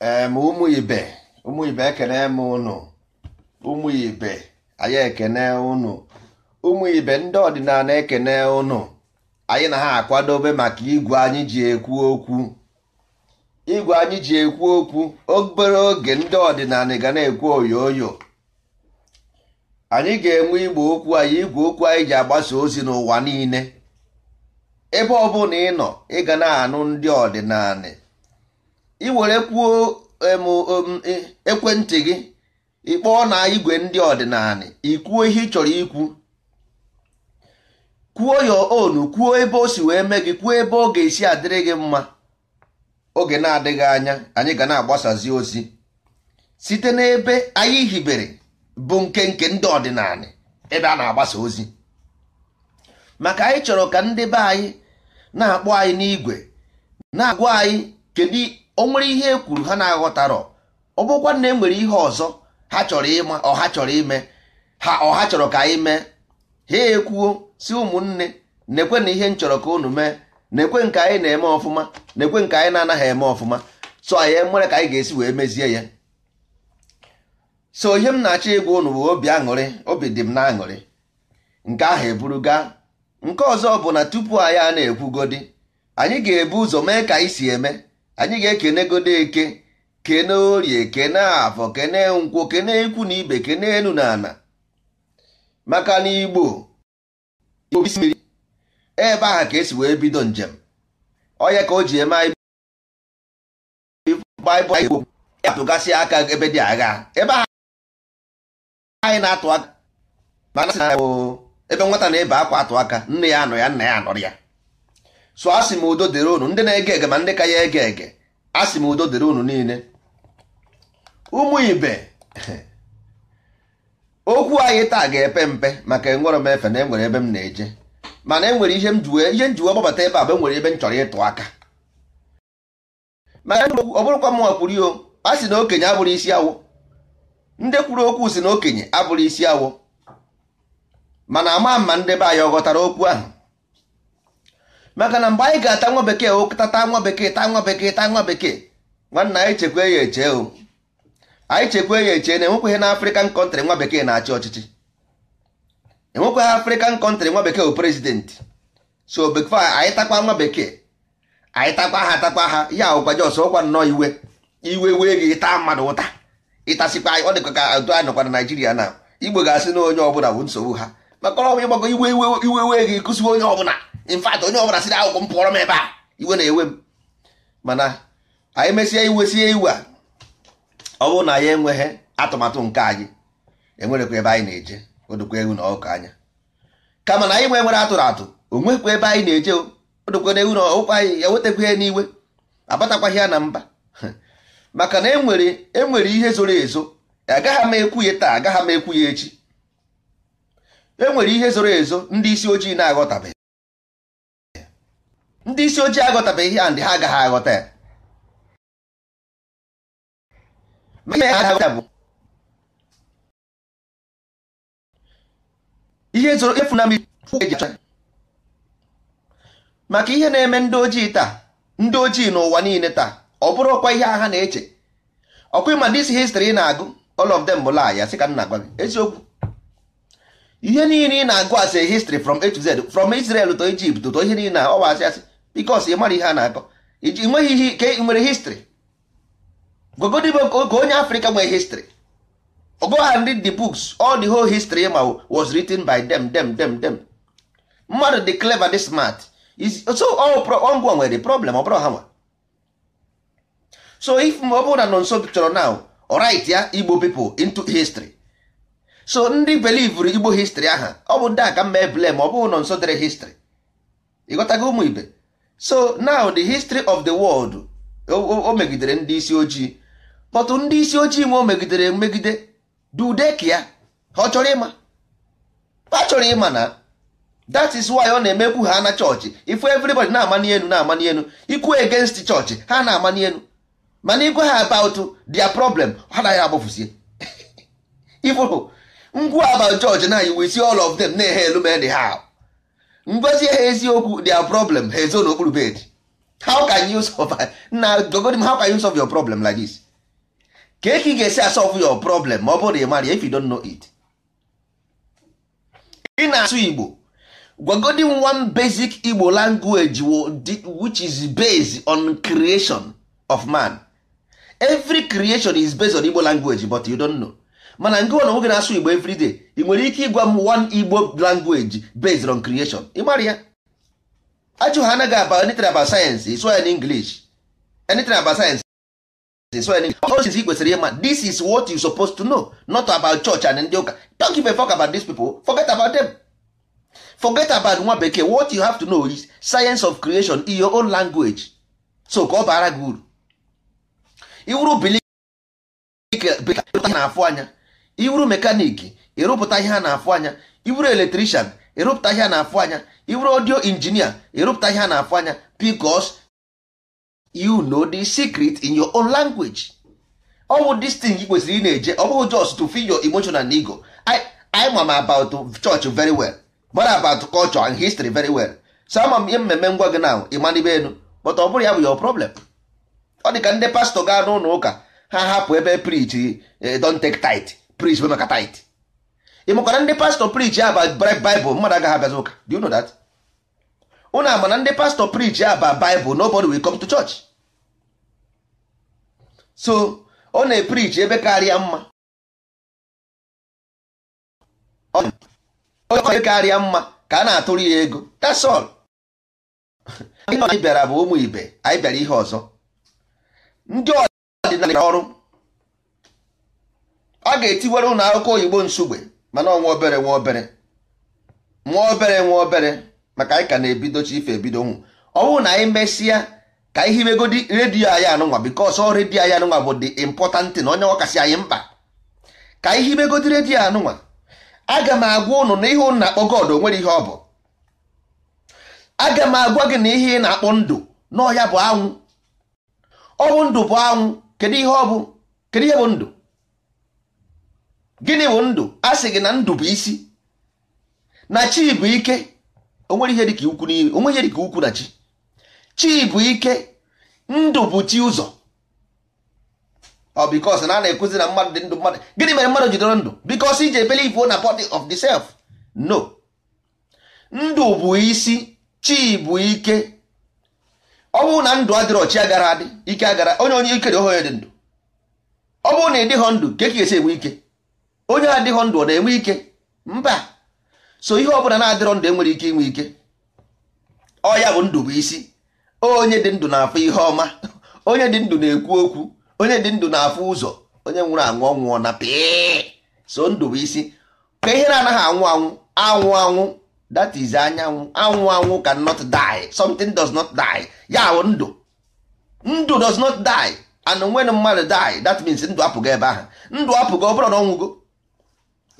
ma ụmụ ibe ụmụ ibe ekene m ụnụ anyị ekene ụnụ ụmụ ibe ndị ọdịnala ekene ụnụ anyị na ha akwadobe maka igwe anyị ji ekwu okwu igwe anyị ji ekwu okwu obere oge ndị ọdịnala ga na-ekwu oyoyo anyị ga-enwe igbo okwu anyị igwe okwu anyị ji agbasa ozi n'ụwa niile ebe ọ bụla ị nọ ị ga na-anụ ndị ọdịnala ị were kwuo e, ekwentị gị ịkpọọ na igwe ndị ọdịnala ikwuo ihe ị chọrọ ikwu kwuo ya onu kwuo ebe o si wee mee gị kwuo ebe ọ ga-esi adịrị gị mma oge na-adịghị anya anyị ga na-agbasazi ozi site n'ebe anyị hibere bụ nke nke ndị ọdịnala ebe a na-agbasa ozi maka anyị chọrọ ka ndị be anyị na-akpọ anyị n'igwe na-agwa anyị kedu o nwere ihe e kwuru ha na-aghọtarọ ọ bụkwa na e nwere ihe ọzọ ha chọrọ ịma ọha chọrọ ime ha ọha chọrọ ka anyị mee ha ekwuo si ụmụnne na-ekwe na ihe m chọrọ ka unu mee na-ekwe nke anyị na-eme ọfụma na-ekwe nke anyị na-anaghị eme ọfụma so anyị mere e ka anyị ga-esi wee mezie ya so ihe m na-achọ ịgwa unu bụ obi aṅụrị obi dị m na-aṅụrị nke ahụ eburuga nke ọzọ bụ na tupu anyị a na-ekwugodi anyị ga-ebu ụzọ mee ka anyị si eme anyị ga-ekene godo eke kene orie kene afọ kene nkwọ kene ikwu na ibe kene enu na ana maka na igbo mmiri ebe ahụ ka esi wee bido njem onye ka o ji eme anyị baịbụl atụgasị aka ebe dị agha ebe ahụ anyị na-atụ aka mana sị na ebe nwata na-ebe akwa atụ aka nne ya anọ ya nna ya anọrọ ya so asị m udo dịrị unu ndị na-ege ege ma ndị ka ya ege ege asị m udo dịrị unu niile ụmụ ibe okwu anyị taa ga-epe mpe maka enwere m efe na enwere ebe m na-eje mana enwere ihe njuwe ihe gbabata ebe a enwere ebe m chọrọ ịtụ aka mana ọ bụrụkwa m wakwuru yo a sị na okenye abụrụ isi awụ ndị kwuru okwu si na okenye abụrụ isi awụ mana ama ma ndị be anyị ọ ghọtara okwu ahụ maka na mgbe anyị ga-ata nwa bekee tata nwa bekee taa nwa bekee taa nwa bekee nwanna anyị chekwe ya eche o anyị chekwe ya eche na enwekweghị na afrịkan kọntrị nwa bekee na-achị ọchịchị enwekweghị afrịkan kọntrị nwa bekee bụ prezidentị so bekee anyị takwa nwa bekee anyị takwa ha takwa ha ya ọgwa jos ọkwa nnọọ iwe iwe wee gị taa mmadụ ụta ịtasịkwa ọ dịka ka otu anyị nọkwa na naijiria na igbo ga-asị na onye ọbụla bụ nsogbu ha maka ọrụ ịgbago iwe iwe iwe wee gị kụsiwe onye ọbụla in onye ọbụla siri akwụkwọ m pụọrọ m ebe a iwe na-ewe m mana anyị mesie iwe sie iwe a ọ bụrụ na ya enweghị atụmatụ nke anyị enwerekwa ebe anyị na-eje odokwa ewu na ọkụ anya kama na anyị nwe nwere atụrụ atụ onwekwa ebe anyị na-eje odokwa na ewu na ọkụkọ anyị ewetakwa ya n'iwe abatakwaghị ya na mba maka na enwere enwere ihe zoro ezo agaghị m ekwu ya taa agaghị m ekwu ya echi enwere ihe zoro ezo ndị isi ojii na-aghọtabeghị ndị isi ojii ihe and ha agaghị aghọta ya ihe zoro efu na mmiri maka ihe na-eme ndị ojii taa ndị ojii n'ụwa niile taa ọ bụrụ ọkwa ihe agha na-eche ọkwa ịma dis histrị ị na-agụ all of them bụ laaya sị ka m na-agwa gị eziokwu ihe niile ị na-agụ asị histrị from A to Z from Israel to Egypt to ihe niile ọwa asị asị bikos ị mara ihe a na-akọ iji nweghị ihe ka ị nwere histri gogodibo oge onye afrịka nwee histri go and read the books all the whole history ma was written by them them them them mmadụ dị clever dị smart so oh, ngwa nwere problem ọ bụrụ ha nwa so if ọ bụrụ na nọ nso chọrọ now right ya igbo pipo into history so ndị belivere igbo history aha ọ bụ ndị aka ka mma ma ọ bụghị nọ nso dere history ịghọtago ụmụ ibe so now the history of the world o megidere ndị isi ojii but ndị isi ojii ma o megidere megide dudeki ya ọ chọrọ ịma ha chọrọ ịma na that is why ọ na-emekwu ha na chọọchị ifu everybody na-ama n'elu na-ama n'elu ikwu against chọọchị ha na-ama n'elu mana igwe ha about their problem ha naghị agbafụzie ifụrụ ngwu about chọọchị na iwu isi all of them na-ehe elu men ha ngozi ha eziokwu their problem ha ezo n'okpuru bed how can you solve na gogodi how can you solve your problem like this ka eke ga-esi asolve your problem ma ọ bụrụ na ị mara if you don't know it ị na-asụ Igbo gwagodi one basic Igbo language which is based on creation of man every creation is based on Igbo language but you don't know mana ngị na nwoke na-asụ igbo everyday ị nwere ike ịgwa m one igbo language based on creation ị mara ya ajụ ha anaghị aba anything about science so in english anything about science so in english ị kwesịrị ịma this is what you supposed to know not about church and ndị ụka don't give a fuck about these people forget about them forget about nwa bekee what you have to know is science of creation in your own language so ka ọ bara gị uru iwuru bilik na-afụ anya iwuru mekaniki ịrụpụta ihe a na-afụ anya iwuru eletrishan ịrụpụta ihe a na-afụ anya iwuru audio injinia ịrụpụta ihe a na-afụ anya because you know the secret in your own language ọ bụ this kwesịrị ị na-eje ọ bụghị just to feel your emotional ego I am about church very well but about culture and history very well so ama m ihe mmemme ngwa gị na ịmanibe elu but ọ bụrụ ya bụ yo problem ọ dị ka ndị pastọ gaa n'ụlọ ụka ha hapụ ebe preach eh, don't take tight preach maka tit ịmakwana ndị pastọ preach ya ba baịbụl mmadụ agaghị abịazi ụka do you know that unu ama na ndị pastọ preach ya ba baịbụl nobody will come to church so ọ na-eprich ebe karịa mma onye karịa mma ka a na-atụrụ ya ego that's all anyị bịara bụ ụmụ ibe anyị bịara ihe ọzọ ndị ọdịnala ọrụ a ga-etiwere ụlọ akwụkwọ oyibo nsugbe mana ọnwa obere nwa obere nwa obere nwa obere maka anyị ka na-ebidochi ife ebido nwụ ọ bụrụ na anyị mesịa ka ihe imegodi redio anyị anụnwa bikos ọ redio anyị anụnwa bụ dị important na onye ọkasị anyị mkpa ka ihe imegodi redio anụnwa aga m agwa ụnụ na ihe ụnụ na-akpọ god onwere ihe ọ bụ aga m agwa gị na ihe ị na-akpọ ndụ na ọhịa bụ anwụ ọ bụ ndụ bụ anwụ kedu ihe ọ bụ kedu ihe bụ ndụ gịnị bụ ndụ a sị gị na ndụ bụ isi na chi bụ ike onwere ihe dịka ukwu onwe ihe dịka ukwu na chi chi bụ ike ndụ bụ chi ụzọ ọ na a na-ekuzi na mmadụ dị ndụ mmadụ gịnị mere mmadụ jidoro ndụ bikos iji believe na body of the self no ndụ bụ isi chi bụ ike ọ bụrụ na ndụ adịrọ chi agara adị ike agara onye onye ikere ohe dị ndụ ọ bụrụ na ị dịghọ ndụ ka e ga-esi enwe ike onye adịghị ndụ ọ na-enwe ike mba so ihe ọbụla na-adịrọ ndụ enwere ike inwe ike ọ ya bụ ndụ bụ isi onye dị ndụ na-afụ ihe ọma onye dị ndụ na-ekwu okwu onye dị ndụ na-afụ ụzọ onye nwụrụ anwụ ọnwụọ na pịị so ndụ bụ isi ka ihe na-anaghị anwụ anwụ anwụ anwụ that is anyanwụ anwụ anwụ can not die something does not die ya bụ ndụ ndụ does not die and when mmadụ die that means ndụ apụgo ebe ahụ ndụ apụgo ọ bụrụ na ọnwụgo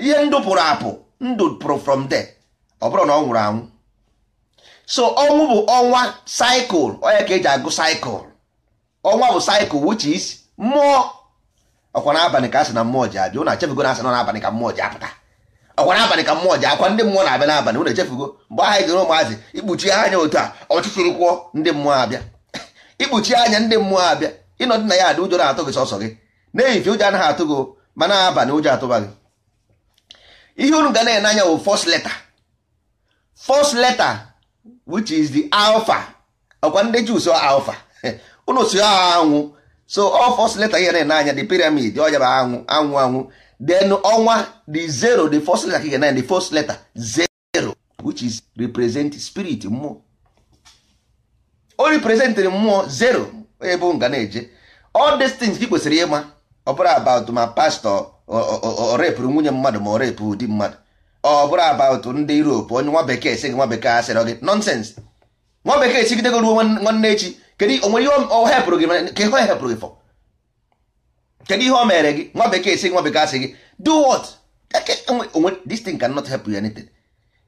ihe ndụ pụrụ apụ ndụ pụrụ from there ọ bụrụ na ọ nwụrụ anwụ so ọnwụ bụ ọnwa cycle onye ka eji agụ cycle ọnwa bụ cycle which is mmụọ ọkwa n'abalị ka asị na mmụọ ji abịa ụnụ achefugo na asị nọ n'abalị ka mmụọ ji apụta ọkwa n'abalị ka mmụọ ji akwa ndị mmụọ na-abịa n'abalị echefugo mgbe anyị jere ụmụazị ikpuchi anya otu a ndị mmụọ abịa ikpuchi anya ndị mmụọ abịa ịnọdị na ya adị ụjọ na-atụ gị sọsọ gị ụjọ anaghị atụ ma abalị ụjọ atụba gị ihe unu ga na-ene anya bụ first letter first letter which is the alpha ọkwa ndị Jews alpha unu si anwụ so all first letter ihe na-ene anya the pyramid ọ yaba anwụ anwụ anwụ then ọnwa the zero the first letter ka ga na the first letter zero which is represent spirit mmụọ o representịrị mmụọ zero ebe nga na-eje all these things gị kwesịrị ịma ọ bụrụ about my pastor ọ repụrụ nwunye mmadụ ma ọ repụ di mmadụ ọ bụrụ about ndị Europe onye nwa bekee esighị nwa bekee asịrọ gị nọnsens nwa bekee chigidego ruo nwanne echi kedu onwere ihe ọ hepụrụ gị ka ihe hepụrụ gị fọ kedu ihe o mere gị nwa bekee esighị nwa bekee asị gị do what this thing cannot help you anything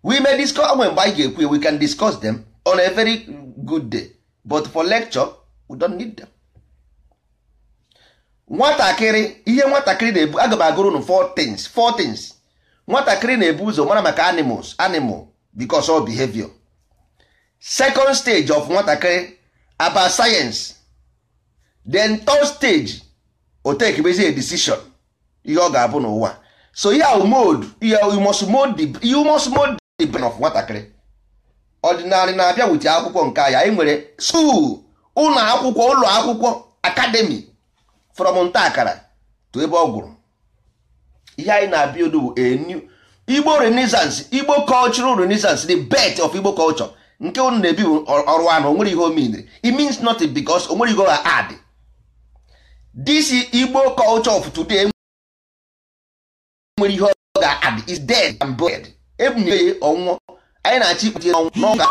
we may discuss onwe mgbe anyị ga-ekwu we can discuss them on a very good day but for lecture we don't need them. nwatakịrị ihe nwatakịrị na-ebu aga m agụrụ nụ things four things nwatakịrị na-ebu ụzọ mara maka animals animal because of behavior second stage of nwatakịrị about science then third stage o tekebezi a decision ihe ọ ga-abụ n'ụwa so ihe ahụ mode ihe you must you must the brain of nwatakịrị ọdịnala na-abịa wute akwụkwọ nke ya anyị nwere school ụlọ akwụkwọ ụlọ akwụkwọ akademi from nta akara to ebe ọ gwụrụ ihe anyị na-abịa odu bụ a igbo renaissance igbo cultural renaissance the birth of igbo culture nke unu na-ebi bụ ọrụ anụ onwere ihe omeniri it means nothing because onwere ihe ha add this igbo culture of today nwere ihe ọ ga-add is dead and buried ebunye ya ọnwụọ anyị na-achị ikpe ọnwụ n'ọga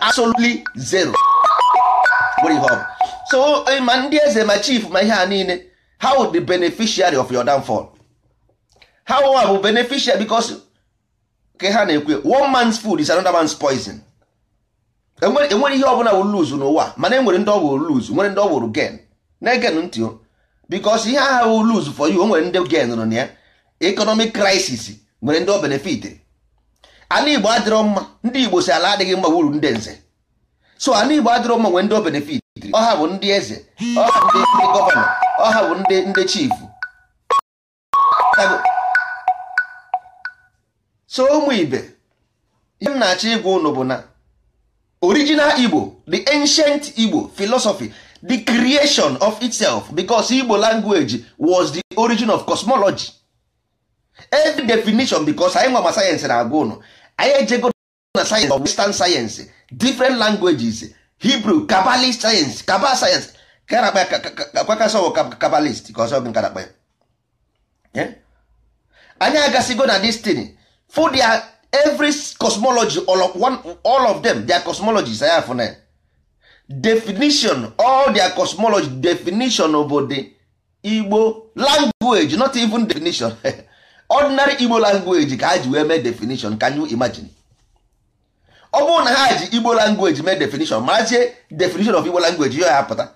absolutely zero nwere ihe ọ bụ so ma ndị eze ma chief ma ihe a niile how the beneficiary of your downfall how wa bụ beneficiary because ka ha na-ekwu one man's food is another man's poison enwere ihe ọbụla bụla lose n'ụwa mana enwere ndị ọ wụrụ lose nwere ndị ọ wụrụ gain na-egen ntị o ihe aha wụ lose for you o nwere ndị gen nọ na ya economic crisis nwere ndị o benefit ala Igbo adịrọ mma ndị Igbo si ala adịghị mma wuru ndị nze so ala Igbo adịrọ mma nwere ndị o ọha bụ ndị eze ọha bụ ndị gọvanọ ọha bụ ndị ndị chief so ụmụ ibe ihe m na-achọ ịgwa ụnụ bụ na original igbo the ancient igbo philosophy the creation of itself because igbo language was the origin of cosmology every definition because anyị nwama ma sayensị na-agwa ụnụ anyị ejego na sayensị of western science different languages hibru kabalist sayensị kabal sayensị kabalist ka ọzọ nkarakpa ya anyị agasigo na destiny for their every cosmology all of, one, all of them their cosmology saya afụna definition all their cosmology definition obodo igbo language not even definition ordinary igbo language ka ha ji wee mee definition can you imagine ọ bụrụ na ha ji igbo language mee definition marazie definition of igbo language ya apụta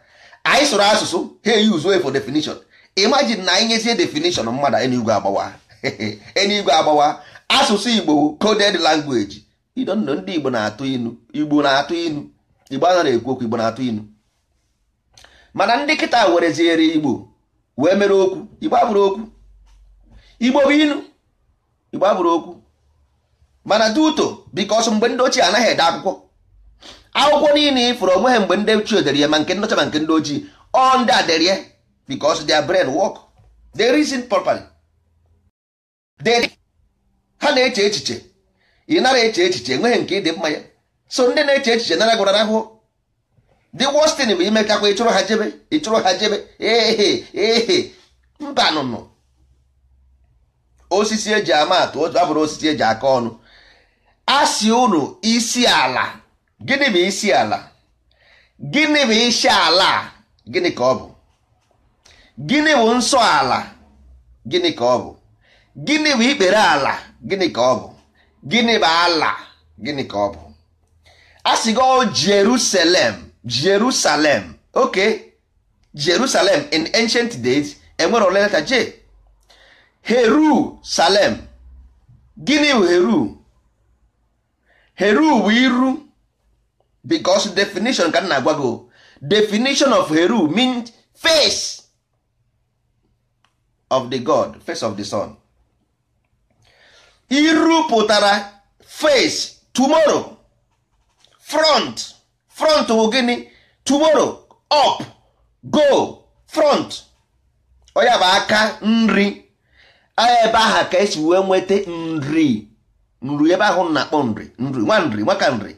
anyị sụrụ asụsụ ha eyuzu e for definition imagine na anyị nyezie definition mmadụ enigwe agbawa enigwe agbawa asụsụ igbo coded language idonno ndị igbo na-atụ inu igbo na-atụ inu igbo anọ na-ekwu okwu igbo na-atụ inu mana ndị kịta wereziere igbo wee mere okwu igbo abụrụ okwu igbo bụ inu igbo abụrụ okwu mana duto because mgbe ndị ochie anaghị ede akwụkwọ akwụkwọ niile ifuru onwe ha mgbe ndị ochie dere ya ma nke nọcha ma nke ndị ojii ọ ndị a dere their brain work reason properly ha na-eche echiche ị nara eche echiche enweghị nke ịdị mma ya so ndị na-eche echiche nara gwara ahụhụ Dị worst bụ bụ imekakwa ịchụrụ ha jebe ịchụrụ ha jebe ehe ehe mba nụnụ osisi eji ama atụ abụrụ osisi eji aka ọnụ asị unu isi ala gịnị bụ isi ala gịnị bụ isi ala gịnị ka ọ bụ gịnị bụ nsọ ala gịnị ka ọ bụ gịnị bụ ikpere ala gịnị ka ọ bụ gịnị bụ ala gịnị ka ọ bụ asịgo oh, Jerusalem Jerusalem oke Jerusalem in ancient days enwere ole leta J Heru Salem gịnị bụ Heru heru iru because definition ka m na-agwa gị definition of heru means face of the god face of the sun iru pụtara face tomorrow front front bụ gịnị tomorrow up go front onye bụ aka nri ebe aha ka esi wee nweta nri nri ebe ahụ na-akpọ nri nri nwa nri nwaka nri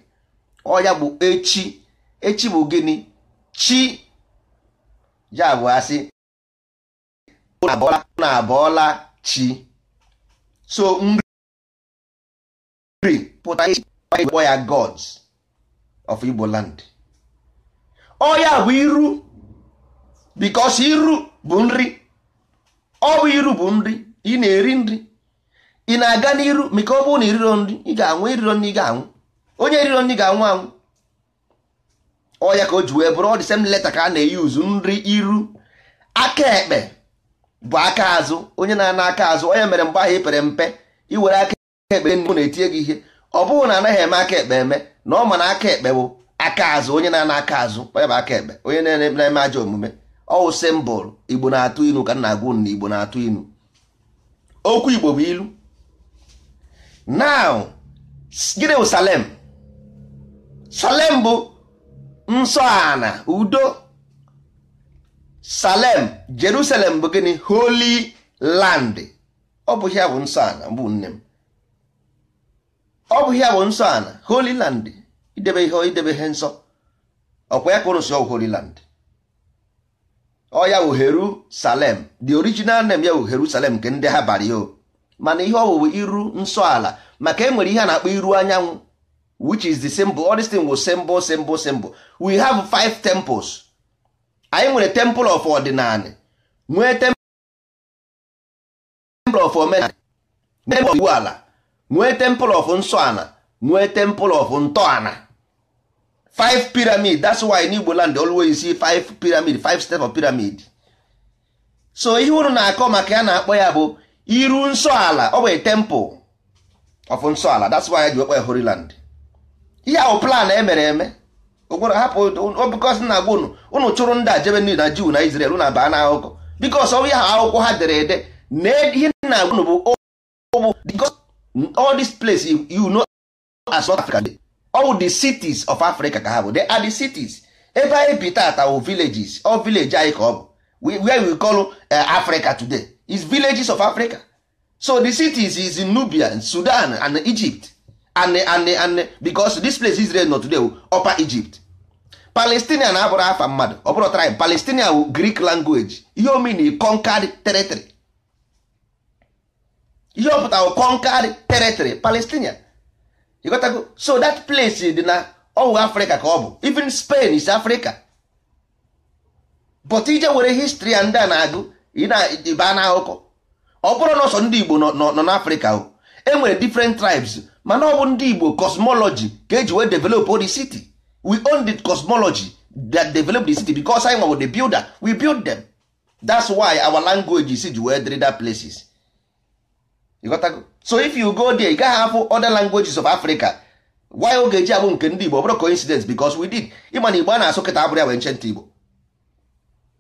ọya bụ echi echi bụ gịnị chi ya bụ asị na abọọla chi so nri pụta kpọ ya gods of Igbo land ọya bụ iru because iru bụ nri ọ bụ iru bụ nri ị na-eri nri ị na-aga n'iru maka ọ bụrụ na iriro nri ị ga-anwụ iriro nri ị ga-anwụ onye iriro nri ga-anwụ anwụ ọ ya ka o ji wee bụrụ ọ dị same leta ka a na-eyuzu nri iru aka ekpe bụ aka azụ onye na-ana aka azụ onye mere mgbe ahụ ipere mpe iwere aka ekpe mbụ na-etinye gị ihe ọ bụghị na anaghị eme aka ekpe eme na ọ ma na aka ekpe bụ aka azụ onye na-ana aka azụ onye bụ aka ekpe onye na-eme ajọ omume ọwụ simbụl igbo na-atụ ilu ka nna agwụ na igbo na-atụ ilu okwu igbo bụ ilu now gịnị bụ salem salem bụ nsọ ana udo salem jerusalem bụ gịnị holy land ọ bụ ya bụ nsọ ana bụ nne m ọ bụ ya bụ nsọ ana holy land idebe ihe idebe ihe nsọ ọkwa ya ka ụrụ si ọgwụ holy land ọ ya bụ heru the original name ya bụ heru nke ndị ha bara ya o mana ihe ọwụwa iru nsọ ala maka e nwere ihe a na-akpọ iru anyanwụ which is the symbol all these things was symbol symbol symbol we have five temples anyị nwere temple of ordinary nwee temple of omenala nwee temple of iwu ala nwee temple of nsọ ala nwee temple of ntọala five pyramid that's why in Igbo land always see five pyramid five step of pyramid so ihe unu na-akọ maka ya na-akpọ ya bụ iru nsọ ala ọ bụ temple of nsọ ala that's why ji okpe Holy Land ihe ahụ plan emere eme ụgwọrọ hapụ obikọs na agwa unu unu chụrụ ndị a jebe nri na Jew na Israel na baa n'akụkọ bikos ọ ihe ahụ akwụkwọ ha dere ede na ihe na agwa unu bụ bụ because all this place you, you know as North Africa all the cities of Africa ka ha bụ they are the cities ebe anyị bi tata wụ villages ọ village anyị ka ọ bụ where we call uh, Africa today is villages of africa so the cities is in nubia sudan and egypt and, and, and because this place israel not today upper egypt palestinian abụrụ afa mmadụ ọ bụrụ tribe palestinian greek language ihe omini conquered territory ihe ọpụta o conquered territory palestinian ịgotago so that place dị na ọwụ africa ka ọ bụ even spain is africa but ije were history and na agụ ị na-eba na ụkọ ọ bụrụ na ọsọ ndị Igbo nọ n'Afrịka o e nwere different tribes mana ọ bụ ndị Igbo cosmology ka eji wee develop the city we own the cosmology that develop the city because anyị nwa the builder we build them that's why our language is ji wee dịrị that places you got to so if you go there ị gaghị afụ other languages of Africa why oge eji abụ nke ndị Igbo ọ bụrụ coincidence because we did ịma na Igbo a na-asụ kịta abụrụ ya wee nchenta Igbo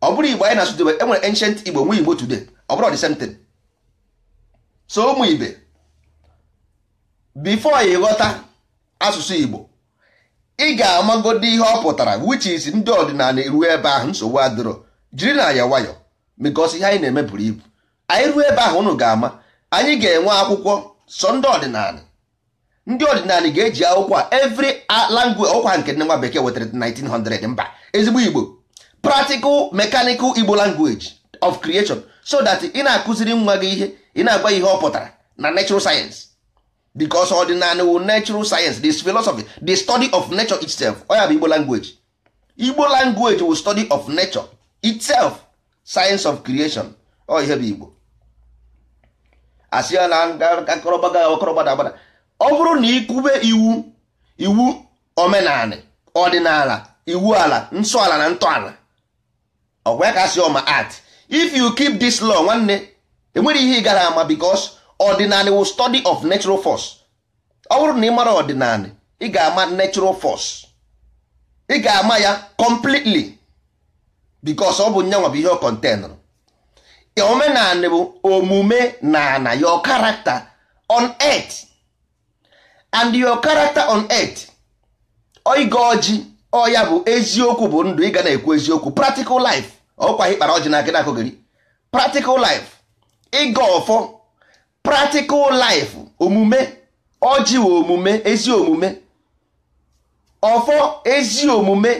ọ bụrụ igbo anyị na-asụ debe e nwere igbo nwe igbo today ọ bụrụ the same thing so ụmụ ibe before ị ghọta asụsụ igbo ị ga-amagodi ihe ọ pụtara which is ndị ọdịnala eruo ebe ahụ nsogbu adịrọ jiri na ya nwayọ because ihe anyị na-eme buru ibu anyị ruo ebe ahụ unu ga-ama anyị ga-enwe akwụkwọ sọ ndị ọdịnala ndị ọdịnala ga-eji akwụkwọ a every language ọkwa nke nne nwa bekee wetara 1900 mba ezigbo igbo practical mechanical igbo language of creation so that ị na-akụziri nwa gị ihe ị na-agwa ihe ọ pụtara na natural science because ọdịnala wu natural science this philosophy the study of nature itself ọ ya bụ igbo language igbo language wo study of nature itself science of creation ọ ihe bụ igbo asị ya na akọrọgbaga agbada ọ bụrụ na ịkụbe iwu iwu omenala ọdịnala iwu ala nsọ ala na ntọala ọgwa ka ọma art if you keep this law nwanne enwere ihe ị gara ama because ordinary will study of natural force ọ bụrụ na ị mara ordinary ị ga-ama natural force ị ga-ama ya completely because ọ bụ nyanwa bụ ihe ọ containụrụ bụ omume na na your character on earth and your character on earth oigo ọjị ọ ya bụ eziokwu bụ ndụ ị ga na-ekwu eziokwu practical life ọkwa ịkpara ọjị na akịna gịrị practical life ịga ọfọ practical life omume ọjị omume ezi omume ọfọ ezi omume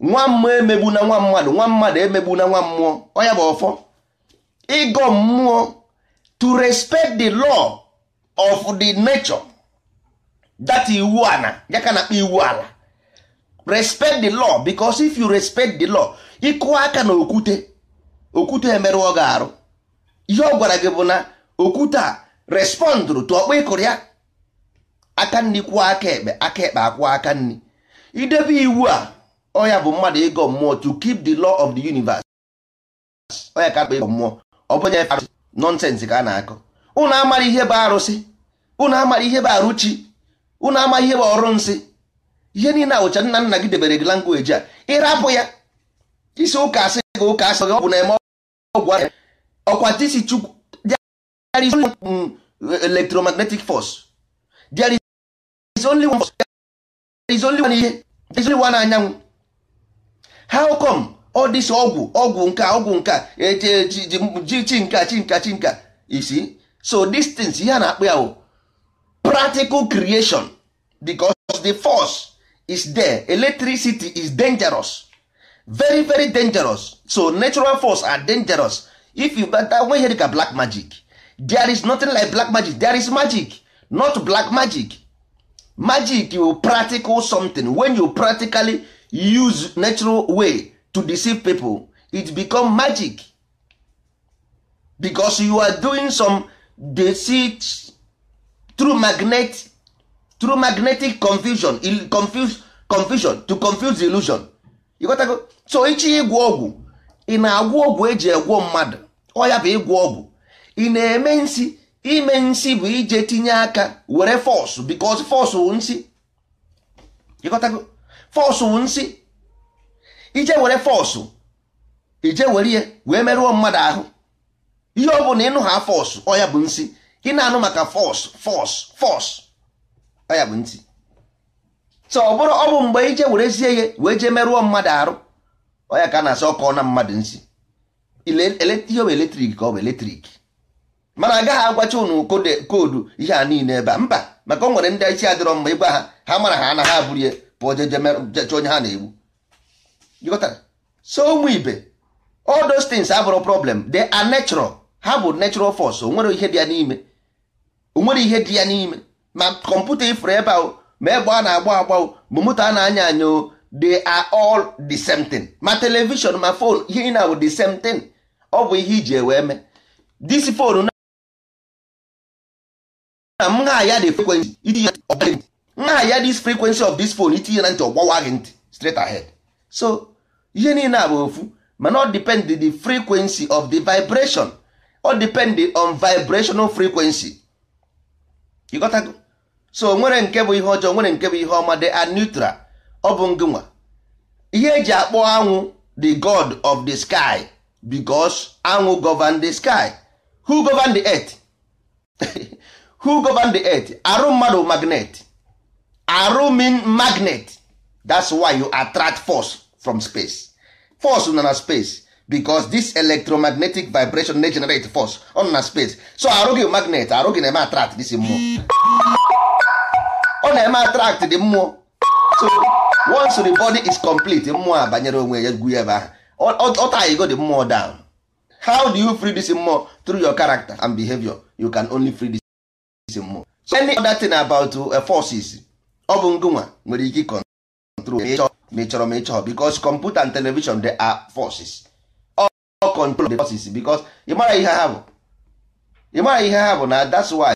nwa mmụọ emegbu na nwa mmadụ nwa mmadụ emegbu na nwa mmụọ ọ ya bụ ọfọ ịgọ mmụọ to respect the law of the nature that iwu ala ya na-akpa iwu ala respect the law because if you respect the law ịkụwa aka na okwute okwute emerụọ gị arụ ihe ọ gwara gị bụ na okwute a respondụrụ tụ ọkpọ ịkụrụ ya aka nri kwụọ aka ekpe aka ekpe akwụọ aka nri idebe iwu a ọya bụ mmadụ ịgọ mmụọ to keep the law of the universe ọya ka akpa ịgọ mmụọ ọ bụnye nọnsensị ka a na-akọ ụnụ amara ihe bụ arụsị ụnụ amara ihe bụ arụchi ụnụ amara ihe bụ ọrụ nsị ihe niile awụcha nna nna gị debere gị langweji a ịrapụ ya isi ụka asị gị ụka asị gị ọgwụ na eme ọgwụ ọkwa tisi chukwu there is only mm, electromagnetic force there is only one force there is only one ihe there is only one anyanwụ how come all this ọgwụ ọgwụ nke ọgwụ nke eche e, ji chi nka chi nka chi nka isi so distance ihe a na akpụ ya bụ practical creation because the force is there electricity is dangerous very very dangerous so natural force are dangerous if you bata nwe ihe dịka black magic there is nothing like black magic there is magic not black magic magic you practical something when you practically use natural way to deceive people it become magic because you are doing some deceit through magnet through magnetic confusion confuse confusion to confuse illusion ịghọtago so ichi ịgwọ ọgwụ ị na agwụ ọgwụ eji egwọ mmadụ ọ bụ ịgwọ ọgwụ ị na-eme nsi ime nsi bụ ije tinye aka were fọsụ because fọsụ nsi ịghọtago fọsụ nsi ije were fọsụ ije were ihe wee merụọ mmadụ ahụ ihe ọ bụla ịnụ ha fọsụ ọya bụ nsi ị na-anụ maka fọs fọs fọsụ ya bụ ntị so ọ bụrụ ọ bụ mgbe ije werezie ihe wee jee merụọ mmadụ arụ ọya ka a na-asị ọkọ na mmadụ nsị ihe bụ eletrik ka ọ bụ eletrik mana agaghị agwacha ụnụ koodu ihe a niile ebe a mba maka ọ nwere ndị isi adịrọ mma ịgwa ha ha mara ha anaghị abụrụ ya pụọ jejecha onye ha na-egbu so ụmụ ibe all those abụrụ problem de are natural ha bụ natural force onwere ihe dị ya n'ime onwere ihe dị ya n'ime ma kọmputa ifuru ebe ahụ ma egbe a na-agba agba ma moto a na-anya anya they are all the same thing ma television ma fon ihe na bụ the same thing ọ bụ ihe iji ewee mee this phone na m na-aya the frequency itinye ntị na-aya this frequency of this phone itinye na ntị ọgbawa gị ntị straight ahead so ihe niile a bụ ofu mana ọ depend the frequency of the vibration ọ depend on vibrational frequency so nwere nke bụ ihe ọjọọ nwere nke bụ ihe ọma dị a neutral ọ bụ ngịnwa ihe eji akpọ anwụ the god of the sky because anwụ govern the sky who govern the earth who govern the earth arụ mmadụ magnet arụ mean magnet that's why you attract force from space force nọ na space because this electromagnetic vibration na-generate force on na space so arụ gị magnet arụ gị na-eme attract this mmụọ na-eme attract dị mmụọ so once the body is complete mmụọ a banyere onwe ya gwu ya ebe ahụ ọtaghịgo the mmụọ down how do you free this mmụọ through your character and behavior you can only free this mmụọ so any other thing about uh, forces ọ bụ ngụnwa nwere ike control ma ị chọrọ ma ị chọrọ because computer and television they are forces all control the forces because ị mara ihe ha bụ ị ihe ha bụ na that's why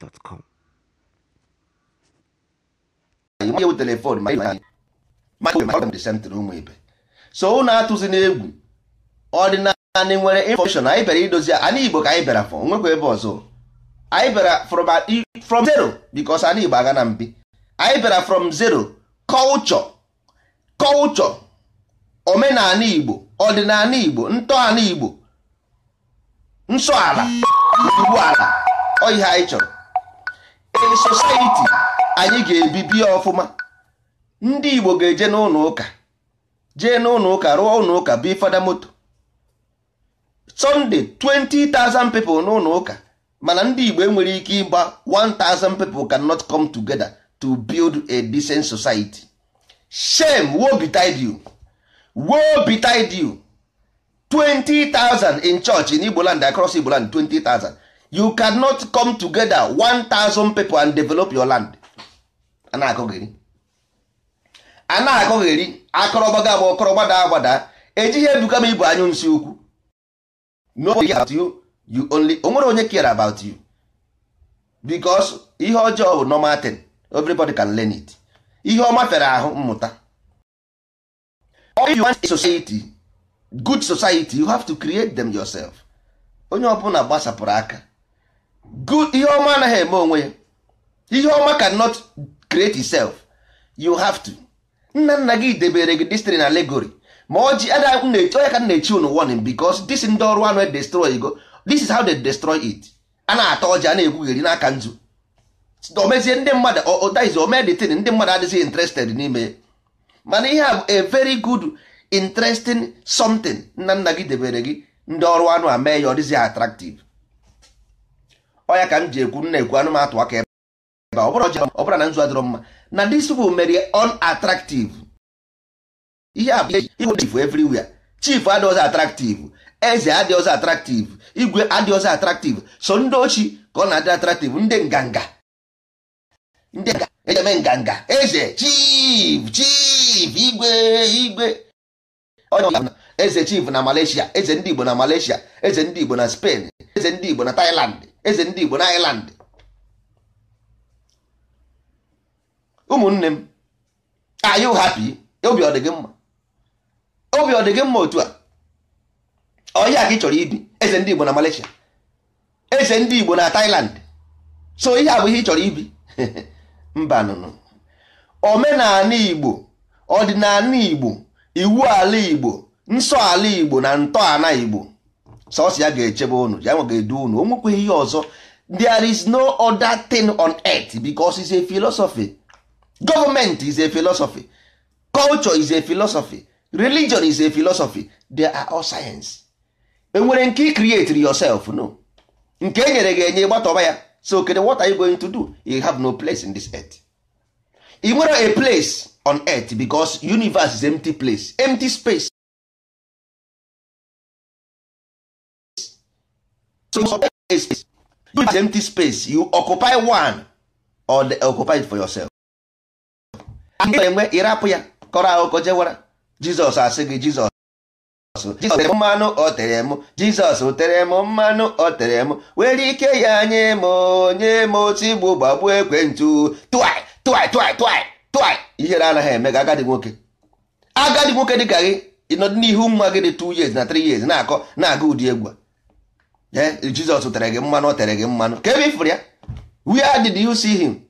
gmail.com nyew telefon sentrị ụmụ ibe so ụnụ atụzi n'egwu ọdịnala nwere infọmeshọn anyị bịara idozi ana igbo ka anyị bịara fọ nwekwa ebe ọzọ anyị bịara from zero bikos ana igbo aga na mbi anyị bịara from zero culture culture omenala igbo ọdịnala igbo ntọala igbo nsọala ala ala ọ ihe anyị chọrọ in anyị ga-ebibi ọfụma ndị Igbo ga-eje n'ụlọ ụka jee n'ụlọ ụka rụọ ụlọ ụka bi fada moto Sunday 20,000 people n'ụlọ ụka mana ndị Igbo enwere ike ịgba 1,000 people cannot come together to build a decent society shame woe betide 20,000 in church in Igbo land across Igbo land 20,000 you cannot come together 1000 people and develop your land ana-akọgheri ana-akọgheri akọrọgbaga agba ọkọrọgbada agbada ejighị ebuka m ibu anyụ nsi ukwu nobody about you you only o onye care about you because ihe ọjọọ bụ normal thing everybody can learn it ihe ọma fere ahụ mmụta if you want a society good society you have to create them yourself onye ọbụla gbasapụrụ aka good ihe ọma anaghị eme onwe ya ihe ọma cannot create itself you have to nna nna gị debere gị destiny na allegory ma ọjị onye ka na-echi unu warning because this ndị ọrụ anụ e destroy go this is how they destroy it a na-ata ọjị a na-egwugheri n'aka nzu omezie ndị mmadụ ọdaizi omeditin ndị mmadụ adịghị interested n'ime mana ihe a a very good interesting something nna nna gị debere gị ndị ọrụ anụ a mee ya ọ dịzi attractive ọya ka m ji ekwu nna ekwu anụmatụ aka ebe ọ bụrụ na nzu adịrọ mma na dis bụ mere unattractive ihe a bụ chief everywhere chief adịghị attractive eze adịghị attractive igwe adịghị attractive so ndị ochi ka ọ na-adị attractive ndị nganga ndị ejeme nganga eze chief chief igwe igwe eze chief na Malaysia eze ndị Igbo na Malaysia eze ndị Igbo na Spain eze ndị Igbo na Thailand eze ndị Igbo na Ireland ụmụnne m are you happy obi ọ dịghị mma obi ọ mma otu a ọhịa ka ị chọrọ ibi eze ndị Igbo na Malaysia eze ndị Igbo na Thailand so ihe a bụ ihe ị chọrọ ibi mba nụnụ omenala Igbo ọdịnala Igbo iwu ala Igbo nsọ ala Igbo na ntọala Igbo sọsọ ya ga-echebe unu ya ga-edu unu onwekwa ihe ọzọ there is no other thing on earth because it's a philosophy government is a philosophy culture is a philosophy religion is a philosophy they are all science enwere nke ị create yourself no nke e nyere gị enye gbatọba ya so kede what are you going to do you have no place in this earth ị nwere a place on earth because universe is empty place empty space space use empty space you occupy one or they occupy it for yourself. enwe ịrapụ ya kọrọ akụkọ jewara Jizọs asị gị Jizọs Jizọs mmanụ ọ tere m Jizọs tere m mmanụ ọ tere m were ike ya nye m nye m otu e igbo gbagbuo ekwentụ tụai tụai tụai tụai tụai ihere anaghị eme ga agadi nwoke agadi nwoke dị ka gị ịnọdụ n'ihu mma gị dị 2 years na 3 years na-akọ na-aga ụdị egwu a Jizọs tere gị mmanụ o tere gị mmanụ ka ebe ifuru ya where did you see him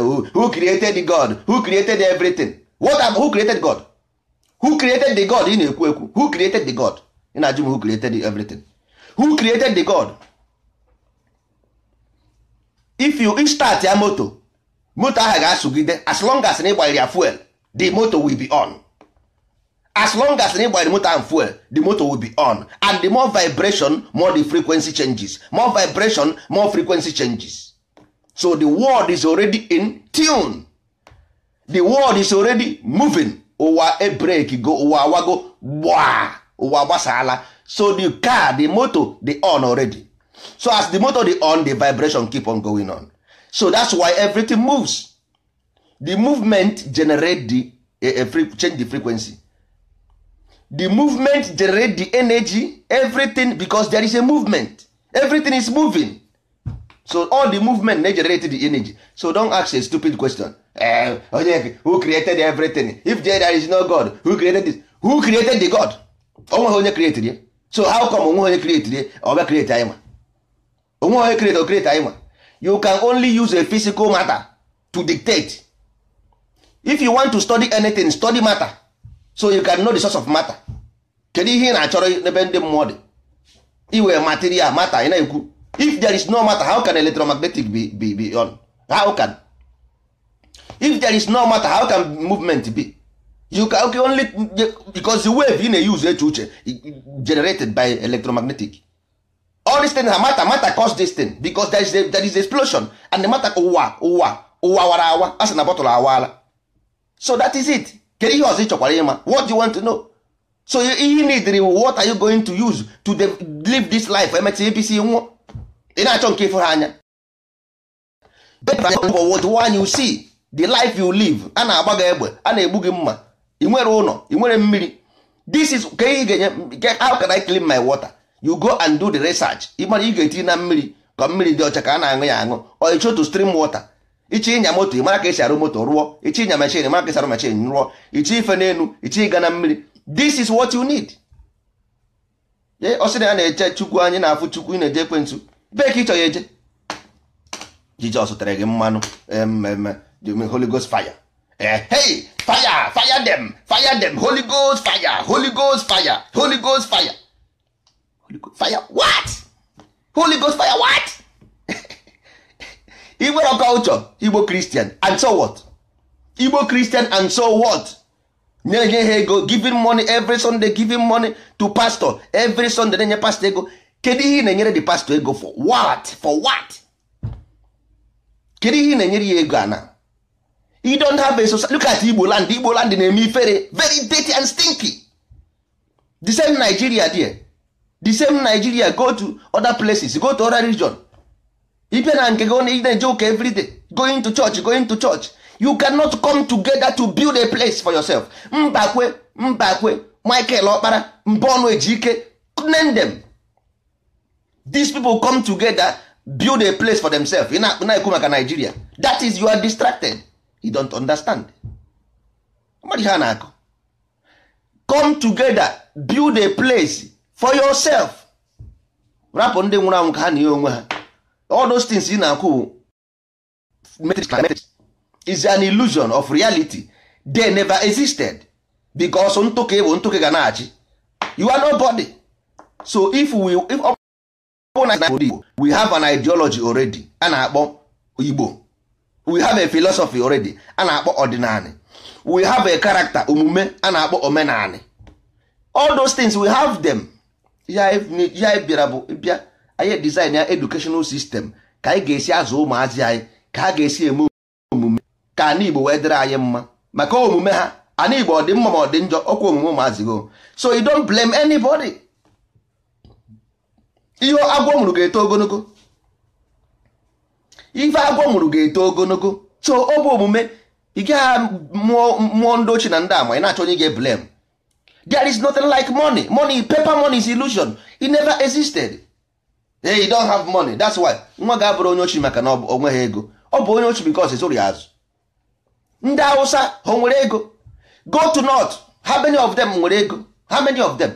who created God who created everything what am who created God who created the God ị na-ekwu ekwu who created the God ị na-ajụ m who created everything who created the God if you start ya moto moto ahụ ga-asụgide as long as na ịgbanyere ya fuel the moto will be on as long as na ịgbanyere motor and fuel the motor will be on and the more vibration more the frequency changes more vibration more frequency changes so the world is already in tune the world is already moving ụwa ebreki go ụwa awago gbaa ụwa gbasala so the car the motor dey on already so as the motor dey on the vibration keep on going on so that's why everything moves the movement generate the eh, eh, change the frequency the movement generate the energy everything because there is a movement everything is moving so all the movement na-generate the energy so don ask a stupid question uh, eh, onye who created everything if there is no god who created this who created the god onweghị onye created ya so how come onweghị onye created ya ọ create anyị nwa onweghị onye create ọ create anyị you can only use a physical matter to dictate if you want to study anything study matter so you can know the source of matter kedu ihe ị na-achọrọ n'ebe ndị mmụọ dị iwe material matter ị na-ekwu if there is no matter how can electromagnetic be, be, be on how can if there is no matter how can movement be you can okay, only because the wave ị na-use eche uche generated by electromagnetic all these things are matter matter cause this thing because there is, a, there is explosion and the matter ụwa ụwa ụwa wara awa a na bọtụlụ awaala so that is it kedu ihe ọzọ ị chọkwara ịma what you want to know so ihe need what are you going to use to live this life emecha apc nwụọ ị na-achọ nke ịfụ ha anya what one you see the life you live a na-agba gị egbe a na-egbu gị mma ị nwere ụlọ ị nwere mmiri this is ka ị ga-enye how can I clean my water you go and do the research ị mara ị ga-etinye na mmiri ka mmiri dị ọcha ka a na-aṅụ ya aṅụ or you to stream water ichi ịnya moto ị mara ka esi arụ moto rụọ ichi ịnya machin mara ka esi arụ machin rụọ ichi ife n'elu ichi ịga na mmiri this is what you need ọ sị na ya na-eche chukwu anyị na-afụ chukwu ị na-eje ekwentị bee ka ịchọ ya eje jizọs tere gị mmanụ mmemme holy ghost fire eh, hey fire fire dem fire dem holy ghost fire holy ghost fire holy ghost fire holy Igbo culture Igbo Christian and so what? Igbo Christian and so what? na nye ha ego giving money every Sunday giving money to pastor every Sunday na-enye pastor ego kedu ihe na-enyere the pastor ego for what for what? kedu ihe na-enyere ya ego ana you don't have a society look at Igbo land Igbo land na-eme ifere very dirty and stinky the same Nigeria there the same Nigeria go to other places go to other region ipe na nke gị na-eje everyday going to church going to church you cannot come together to build a place for yourself mbakwe mbakwe michael ọkpara mba Ejike name them these people come together build a place for themselves ị na-ekwu maka Nigeria that is you are distracted you don't understand mmadụ ha na-akụ come together build a place for yourself rapụ ndị nwụrụ anwụ ka ha na ihe onwe ha all those things ị na-akwụ metrics climatics is an illusion of reality they never existed because ntụke bụ ntụke ga na-achị you are nobody so if we if igbo we have an ideology already a na-akpọ igbo we have a philosophy already a na-akpọ ọdịnala we have a character omume a na-akpọ omenala all those things we have them ya e, e bịara bụ e bịa anyị design ya edukeshonal sistem ka anyị ga-esi azụ ụmụazị anyị ka ha ga-esi eme omume ka ana igbo wee dịrị anyị mma maka omume ha ana igbo ọ dị mma ma ọ dị njọ ọkwa omume ụmụazị go so you don't blame anybody ihe agwọ mụrụ ga-eto ogologo ife agwọ mụrụ ga-eto ogologo so ọ bụ omume ị gaghị mụọ ndị ochie na ndị ama ị na-achọ onye ga-eblem there is nothing like money money paper money is illusion it never existed Ee, eh, you don't have money that's why nwa ga-abụrụ onye ochi maka na ọ onweghị ego ọ bụ onye ochi because esoro ya azụ ndị awụsa ha nwere ego go to north how many of them nwere ego how many of them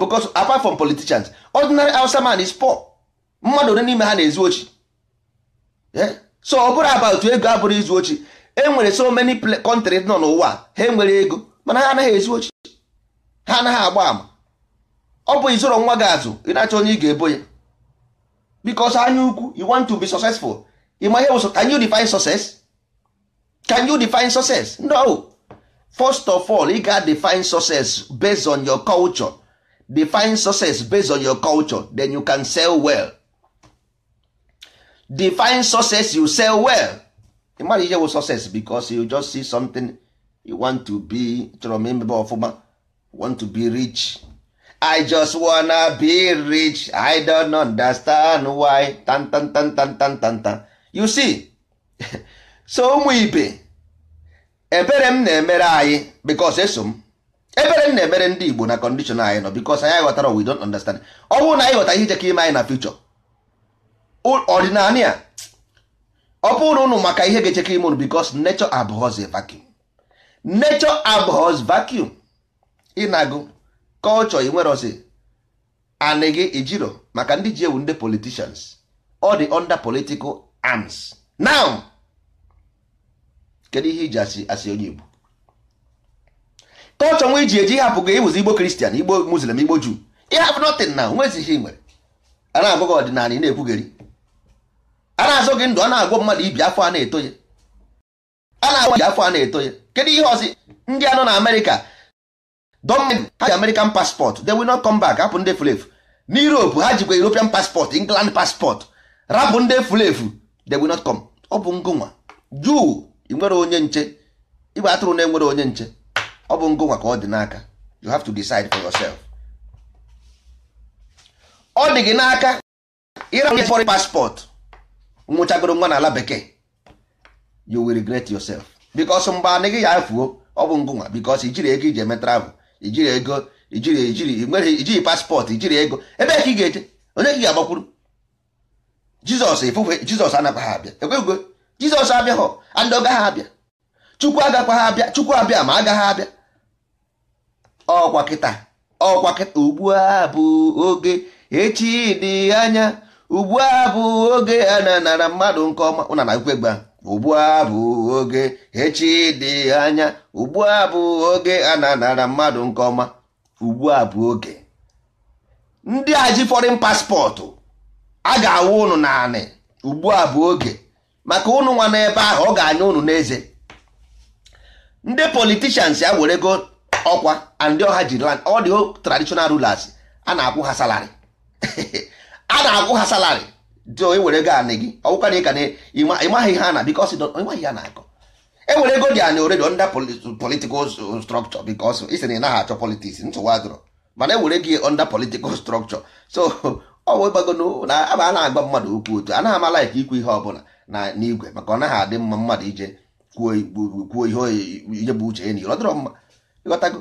because apart from politicians ordinary awụsa man is poor mmadụ ole n'ime ha na-ezu ochi eh? so ọ bụrụ about ego abụrụ izu ochi e nwere so many countries nọ n'ụwa ha enwere ego mana ha anaghị ezu ochi ha anaghị agba ama ọ bụ izoro nwa gị azụ ị na-achọ onye ị ga-ebo ya because anya ukwu you want to be successful ịma ihe bụ can you define success can you define success no first of all ị ga define success based on your culture define success based on your culture then you can sell well define success you sell well ịmara ihe bụ success because you just see something you want to be chọrọ m imebe ọfụma want to be rich I just wanna be rich. I don't understand why. Tan tan tan tan tan tan tan. You see, so ụmụ ibe ebere m na-emere anyị because eso m ebere m na-emere ndị Igbo na condition anyị nọ because anyị ghọtara we don't understand. Ọ bụrụ na anyị ghọta ihe jekọ ime anyị na future ọdịnala ọ bụrụ ụnụ maka ihe ga-echekọ ime ụnụ because nature abhors vacuum. Nature abhors vacuum. Ịnagụ kọlchọ culture inwerozi anị gị ijiro maka ndị ji ewu ndị politicians ọ dị under political arms now kedu ihe iji asị asị onye igbo culture nwa iji eji ịhapụ gị ịbụzi igbo kristian igbo muslim igbo juu Ịhapụ have na now nwezighị ihe nwere a na-agụ gị ọdịnala ị na-ekwugheri a na-azụ gị ndụ a na-agwọ mmadụ ibi afọ a na-etoye a na-agwọ afọ a na-etoye kedu ihe ọzọ ndị anọ na amerịka Don't ha ji American passport they will not come back hapụ ndị fulefu na Europe ha jikwa European passport England passport rapụ ndị fulefu they will not come ọ bụ ngụnwa juu ị nwere onye nche igbe atụrụ na enwere onye nche ọ bụ ngụnwa ka ọ dị n'aka you have to decide for yourself ọ dị gị n'aka ịra onye foreign passport nwụchagoro nwa n'ala bekee you will regret yourself because mgbe anị ya efuo ọ bụ ngụnwa because ijiri ego iji eme travel ijiri ego ijiri ijiri nwere ijiri paspọtụ ijiri ego ebe ka ị ga-eje onye ka ị ga-agbakwuru jizọs ifufe jizọs anakwaghị abịa ekwego jizọs abịaghọ ndị ọgaghị abịa chukwu agakwaghị abịa chukwu abịa ma agagha abịa ọkwa kịta ọkwa kịta ugbu a bụ oge echi dị anya ugbu a bụ oge a na-anara mmadụ nke ọma ụna na ekwe ugbu a bụ oge echi dị anya ugbu a bụ oge a na-anara mmadụ nke ọma ugbu a bụ oge ndị a paspọtụ a ga-awụ ụnụ naanị ugbu a bụ oge maka ụnụ nwa n'ebe ahụ ọ ga-anya ụnụ n'eze ndị politicians ya were go ọkwa ndị ọha ji ọ dị traditional rulers a na-akwụ ha salari a na-akwụ ha salari dị ewere ego anị gị ọwụkwa na ka na ịmaghị ihe na bikos ịmaghị ya na-akọ ewere ego dị anị oredo nda politikal strọkchọ bikos isi na ị naghị achọ politiks ntụwa jụrụ mana ewere gị nda politikal strọkchọ so ọ bụ ịgbago na aba na-agba mmadụ okwu otu anaghị amala ike ikwu ihe ọbụla na n'igwe maka ọ naghị adị mma mmadụ ije kwuo ihe ihe bụ uche ya ọ dịrọ mma ịghọtago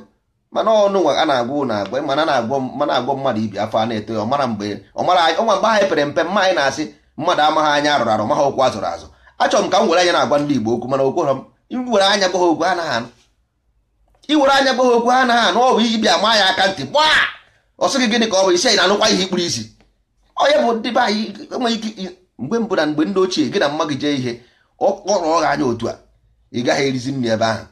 mana ọnụ nwa a na-agwa na agwa mana na-agwọ mmadụ ibi afọ a na-eto ya ọmara mgbe ọnwa mgbe anyị e pere mpe mma anyị na-asị mmadụ amaghị anya arụrụ arụ maha okwu azụrụ azụ achọrọ m ka m were anya na-agwa ndị Igbo okwu mana okwu ha iwere anya gwa okwu ha anaghị anụ iwere anya gwa okwu anaghị anụ ọ bụ ibia maa aka ntị gba ọ sịghị gịnị ka ọ bụ isi anyị na-anụkwa ihe ikpuru isi onye bụ ndị be anyị enweghị ike mgbe mbụ na mgbe ndị ochie gị na mma gị jee ihe ọ kpọrọ ọgha anya otu a ị gaghị erizi nri ebe ahụ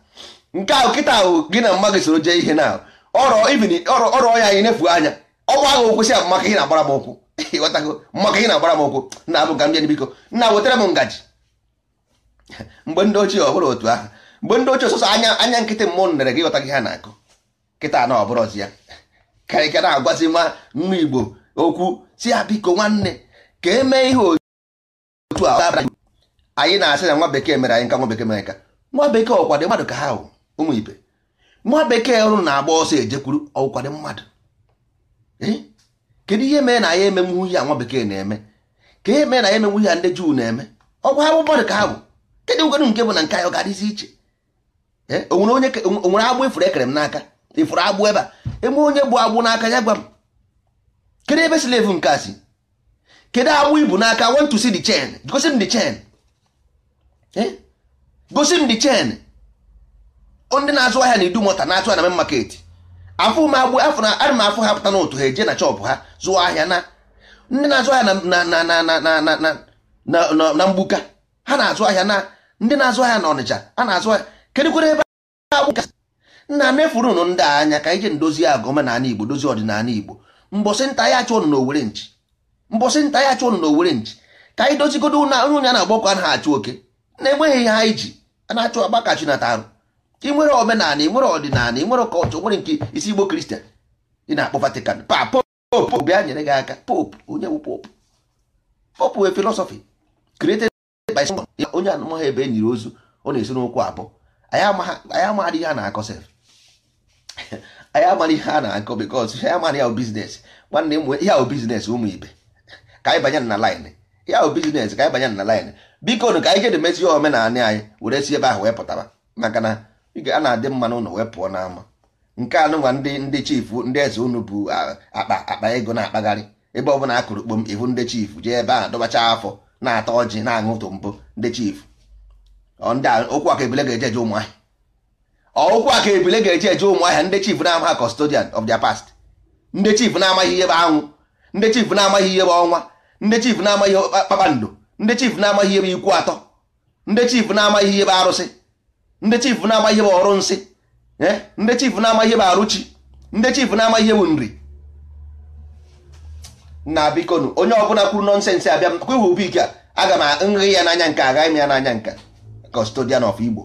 nke ahụ kịta ahụ gị na mma soro jee ihe na ọrọ ya anyị nefu anya ọgwụ ahụ okwu si maka ị na-agbara m ụkwụ ịghọtago maka ị na-agbara m ụkwụ na abụ ga m bịa biko nna wetara m ngaji mgbe ndị ochie ọ bụrụ otu ahụ mgbe ndị ochie ọsọsọ anya anya nkịtị mmụọ nere gị ịghọta gị ha na-akụ kịta na ọbụrụzi ya karịka na-agwazi nwa igbo okwu si ya biko nwanne ka emee ihe otu a anyị na-asị na nwa bekee mere anyị nwa bekee mere nwa bekee mmadụ ka ha hụ ụmụ ibe nwa bekee ọrụ na-agba ọsọ ejekwuru ọkwado mmadụ eh? kedu ihe mere na ya eme mwu a nwa bekee na-eme ka ihe mere na ya eme mwu a ndị juu na-eme ọgwa ha bụ mmadụ ka ha bụ kedu ngwenụ nke bụ na nke anyị ga-adịzi iche eh? onwere onye onwere agbụ ifuru e ekere m n'aka ifuru e agbụ ebe a eme onye bụ agbụ n'aka ya gwa m kedu ebe silevu nke asị si kedu agbụ ibu n'aka want to see the chain gosi m the chain eh? gosi m the chain ndị na-azụ ahịa na-edu mọta na-atụ na main market afụ m agbụ afọ na ana m afụ ha pụta n'otu ha eje na chọpụ ha zụọ ahịa na ndị na-azụ ahịa na mgbuka ha na-azụ ahịa na ndị na-azụ ahịa na ọnịcha a na-azụ ahịa kedụkwere ebe nna mefuru nụ ndị anya ka ije ndozi agụ omenala igbo dozie ọdịnala igbo mbọsị nta ya chụọ nụ n'owere nchi mbọsị nta ya chụọ nụ n'owere nchi ka anyị dozigodo onye onye a na-agbọkọ a na-achụ oke na-enweghị ihe anyị ji a na-achụ agbakachi na arụ ị nwere omenala ị nwere ọdịnala ị nwere kọlchọ nwere nke isi igbo kristian ị na-akpọ vatican pa popu bịa nyere gị aka popu onye bụ popu popu wee filosofi created by someone onye anụmọha ebe enyiri ozu ọ na-esi n'okwu abụọ anyị amaghị ihe a na-akọ sef anyị amaghị ihe a na-akọ bikos ihe amaghị ya biznes nwanne m ihe ahụ biznes ụmụ ibe ka anyị banye na laịnị ihe ahụ biznes ka anyị banye na laịnị biko nụ ka anyị jedemezi omenala anyị were si ebe ahụ wee pụtaba maka na a na-adị mma n'ụlọ wee pụọ n'ama nke nwa ndị ndị chifu ndị eze unu bụ akpa akpa ego na-akpagharị ebe ọbụla a kụrụ kpom ihu ndị jee ebe a dọbacha afọ na-ata ọjị na-aṅụtụ mbụ ndị chifu okwu aka ebile ga-eje eje ụmụahịa aka ebile ga-eje eje ụmụahịa ndị chifu na-amaghị custodian of past ndị chifu na-amaghị ihe bụ anwụ ndị chifu na-amaghị ihe bụ ọnwa ndị chifu na-amaghị ihe kpakpando ndị chifu na-amaghị ihe bụ ikwu atọ ndị chifu na-amaghị ihe bụ arụsị ndị chifu na-ama ihe bụ ọrụ nsị eh? ndị chifu na-ama ihe bụ arụchi ndị chifu na-ama ihe bụ nri na bikonu onye ọbụla kwuru nọnsensị abịa kwewu bike aga m nri ya n'anya nke agaghị m ya n'anya nke kọstodian of igbo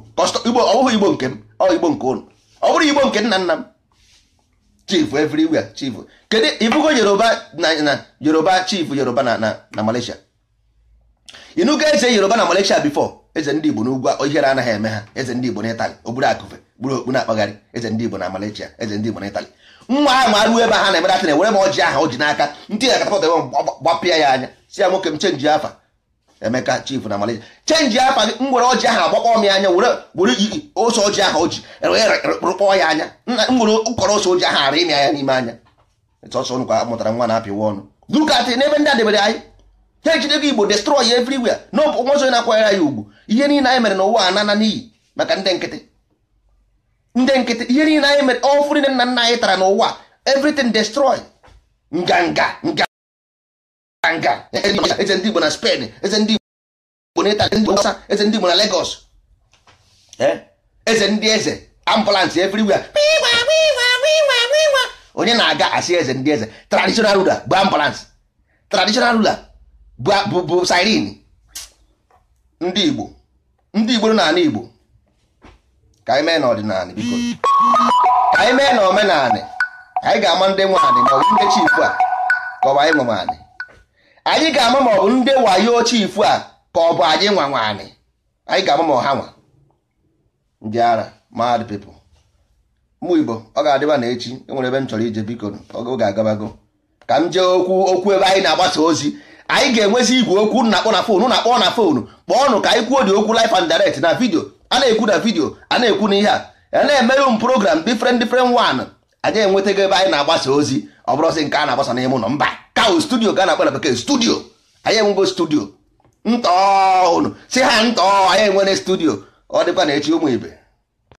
igbo ọ igbo nke m ọ igbo nke ụnụ ọ bụrụ igbo nke nna nna m chief everywhere chief kedu ịbụgo yoruba na yoruba chief yoruba na na malaysia ịnụgo eze yoruba na malaysia before eze ndị Igbo n'ugwu ihere anaghị eme ha eze ndị Igbo na Itali akụfe gburu okpu na-akpagharị eze ndị Igbo na Malaysia eze ndị Igbo na nwa ahụ ma ruo ebe ha na-emedatịn ewere m ọjị aha o ji n'aka ndị na katapọt ebe gbapịa ya anya si ya nwoke m chenji afa Emeka chifu na Malaysia chenji afa gị m were ọjị ahụ agbakpọ m anya were were iyi ose ọjị aha o ji e, e, e, rụkpọọ ya anya m were ụkọrọ ose ọjị ahụ ara ịmị anya n'ime anya sọsọ nkwa mụtara nwa na-apịwa ọnụ duka atị n'ebe ndị a debere anyị ha ejidego igbo destroy everywhere na ọbụ nwa ọzọ na-akwanyere ya ugwu ihe niile anyị mere n'ụwa anana n'iyi maka ndị nkịtị ndị nkịtị ihe niile anyị mere ọfụ niile nna nna anyị tara n'ụwa everything destroy nganga nga nga eze ndị igbo na Spain eze ndị igbo na Italy ndị ọsa eze ndị igbo na Lagos eze ndị eze ambulance everywhere onye na-aga asị eze ndị eze traditional ruler bụ ambulance traditional ruler bụ siren ndị Igbo ndị Igbo n'ala Igbo ka anyị mee n'ọdịnala biko ka anyị mee n'omenala anyị ga-ama ndị nwe anị maọbụ ndị chifu a ka ọ bụ anyị nwe anị anyị ga-ama maọbụ ndị wayo chifu a ka ọ bụ anyị nwa nwa anyị ga-ama ma ọha nwa ndị ara mad people mụ Igbo ọ ga-adịba na echi enwere ebe m chọrọ ije biko oge agabago ka m jee okwu okwu ebe anyị na-agbasa ozi anyị ga-enwezi igwe okwu na-akpọ na fonu na-akpọ na fonu kpọọnụ ka anyị kwuo dị okwu live and direct na vidio a na-ekwu na vidio a na-ekwu na ihe a a na-emerụ m program different different wan anyị enwetago ebe anyị na-agbasa ozi ọ bụrụsị nke a na-agbasa n'ime ụlọ mba kao studio ga na-akpọ na bekee studio anyị enwego studio ntọọnụ si ha ntọọ anyị enwere studio ọ dịkwa na echi ụmụ ibe